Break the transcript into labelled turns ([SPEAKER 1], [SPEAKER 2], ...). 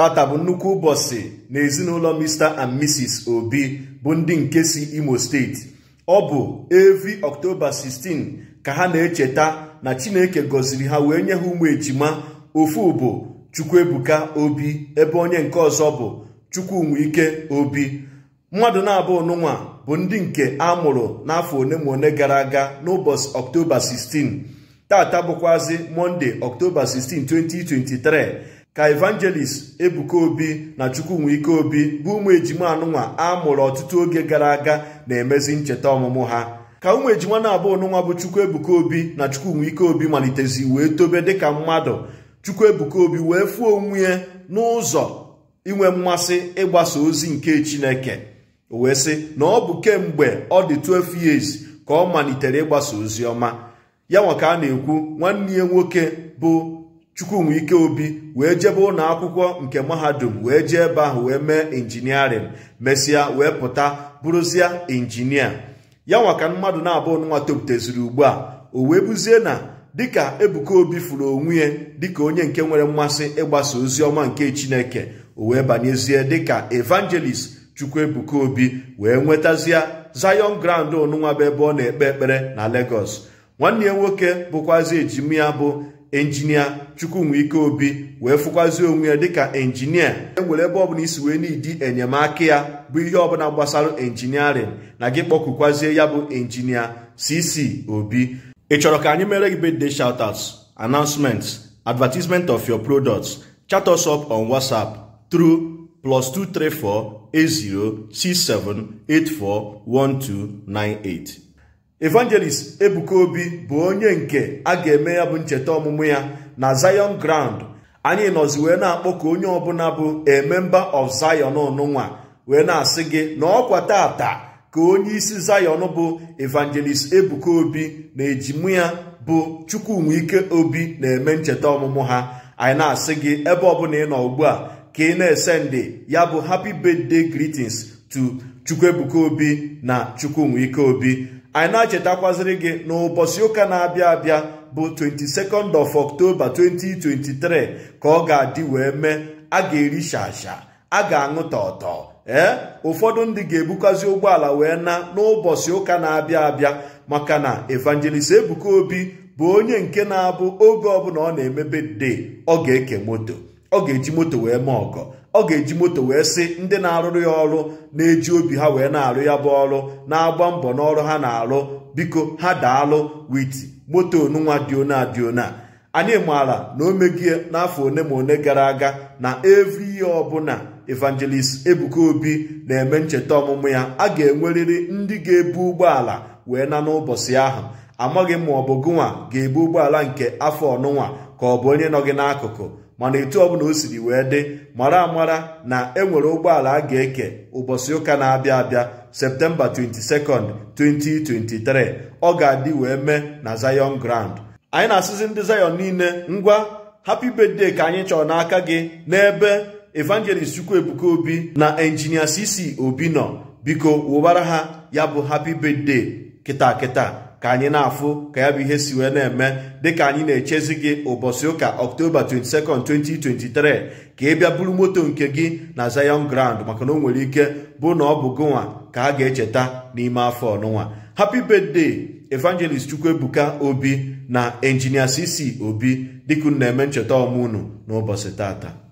[SPEAKER 1] tata bụ nnukwu ụbọchị na ezinụlọ Mr and Mrs Obi bụ ndị nke si Imo steeti ọ bụ evi ọktoba 16 ka ha na-echeta na Chineke gọziri ha wee nye ha ụmụ ejima ofu bụ Chukwuebuka Obi ebe onye nke ọzọ bụ Chukwunwike Obi mmadụ na-abụ nụnwa bụ ndị nke a mụrụ n'afọ one ma one gara aga n'ụbọchị ọktoba 16 tata bụkwazị mọnde ọktoba 16 2023 ka evangelist ebuka obi na chukwunwike obi bụ ụmụ ejima anụnwa a mụrụ ọtụtụ oge gara aga na-emezi ncheta ọmụmụ ha ka ụmụ ejima na-abụ ọnụnwa bụ chukwu ebuka obi na chukwunwike obi malitezi wee tobe dịka mmadụ chukwu ebuka obi wee fụọ onwe ya n'ụzọ inwe mmasị ịgbasa ozi nke chineke wee sị na ọ bụ kemgbe ọ dị 12 years ka ọ malitere ịgbasa ozi ọma ya nwa ka a na-ekwu nwanne ya nwoke bụ chukwumwike obi wee jebe ụlọ akwụkwọ nke mahadum wee jee ebe ahụ wee mee injiniarịn mesịa wee pụta bụrụzie injinia ya nwaka ka mmadụ na-abụ nwa toputeziri ugbu a o wee buzie na dịka ebuka obi furu onwe ya dịka onye nke nwere mmasị ịgbasa ozi ọma nke chineke o wee banyezie dịka evangelist chukwuebuka obi wee nwetazie zion grand onụnwa bụ ebe ọ na-ekpe ekpere na lagos nwanne ya nwoke bụkwazi ejimi ya bụ enjinia chukwumikeobi obi wee fụkwazie onwe ya dịka enjinia e nwere ebe ọbụla isi wee n'idi enyemaka ya bụ ihe ọbụla gbasara enjiniarịn na gị kpọkukwazie ya bụ enjinia cc obi ị chọrọ ka anyị mere gị birthday shoutouts announcements advertisement of your products chat us up on whatsapp through plus 234 84 evangelist ebuka obi bụ onye nke a ga-eme ya bụ ncheta ọmụmụ ya na zion ground anyị nọzi wee na-akpọ ka onye ọbụla bụ ememba member of zion ọnụnwa wee na-asị gị na ọkwa tata ka onye isi zion bụ evangelist ebuka obi na ejimu ya bụ chukwunwike obi na-eme ncheta ọmụmụ ha anyị na-asị gị ebe ọbụla ị nọ ugbu a ka ị na-esendị ya bụ happy birthday greetings to chukwuebuka obi na nwike obi anyị na-achetakwaziri gị n'ụbọchị ụka na-abịa abịa bụ 22nd of October 2023 ka ọ ga-adị wee mee a ga-eri shasha a ga-aṅụ ọtọ ee ụfọdụ ndị ga-ebukwazi ụgbọala wee na n'ụbọchị ụka na-abịa abịa maka na evangelist Ebuka Obi bụ onye nke na-abụ oge ọbụla ọ na-emebe de ọ ga-eke moto ọ ga-eji moto wee mee ọgọ ọ ga-eji moto wee sị ndị na-arụrụ ya ọrụ na-eji obi ha wee na-arụ ya bụ ọrụ na-agba mbọ n'ọrụ ha na-arụ biko ha daalụ wit moto onunwa dịona dịona anyị maara na o megie n'afọ one ma one gara aga na evri ihe ọbụla evangelist ebuka obi na-eme ncheta ọmụmụ ya a ga-enwerịrị ndị ga-ebu ụgbọala wee na n'ụbọchị ahụ amaghị m ma ọ bụ gụnwa ga-ebu ụgbọala nke afọ ọnụnwa ka ọ bụ onye nọ gị n'akụkụ mana etu ọbụla o siri wee dị mara amara na enwere ụgbọala a ga-eke ụbọchị ụka na-abịa abịa septemba 22 nd 2023 ọ ga-adị wee mee na Zion Grand anyị na-asịzi ndị zayon niile ngwa happy birthday ka anyị chọrọ n'aka gị n'ebe evangelist ebuka Obi na injinia CC Obi nọ biko wụbara ha ya bụ happy birthday kịta kịta ka anyị na-afụ ka ya bụ ihe si wee na-eme dịka anyị na-echezi gị ụbọchị ụka ọktoba 22 2023 ka ị bịa buru moto nke gị na Zion Grand maka na o nwere ike bụ na ọ bụ gụnwa ka a ga-echeta n'ime afọ ọnụnwa happy birthday evangelist chukwuebuka obi na injinia cc obi dịka na-eme ncheta ọmụnụ n'ụbọchị tata